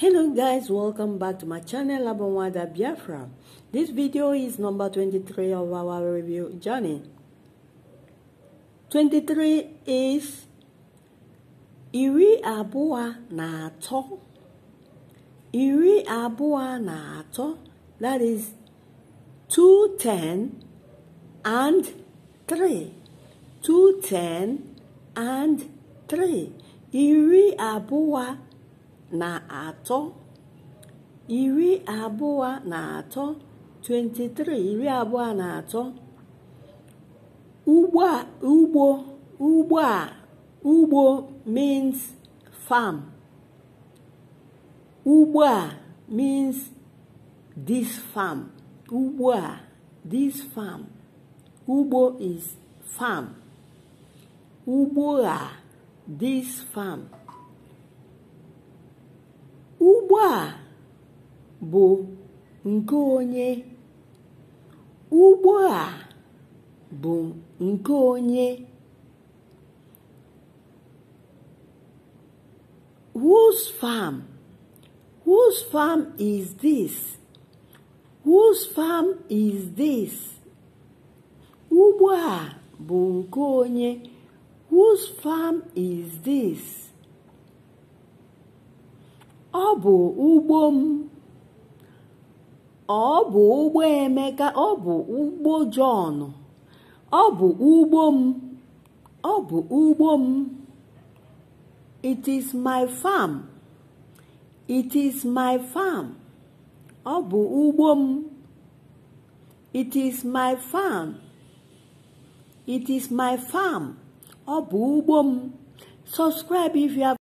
Hello guys, welcome back to my channel Abonwada Biafra. This video is number 23 of our review journey. 23 is Iri Abua Nato. Iri Abua Nato, that is 210 and 3. 210 and 3. Iri Abua Nato. na atọ iri abụọ na atọ 23 iri abụọ na atọ ugbo ugbo ugbo a ugbo means farm ugbo a means this farm ugbo a this farm ugbo is farm ugbo a this farm a bụ nke onye ugbo a bụ nke onye whose farm whose farm is this whose farm is this ugbo a bụ nke onye whose farm is this ọ bụ ugbo m ọ bụ ugbo Emeka ọ bụ ugbo Jọn ọ bụ ugbo m ọ bụ ugbo m it is my farm it is my farm ọ bụ ugbo m it is my farm it is my farm ọ bụ ugbo m subscribe if you have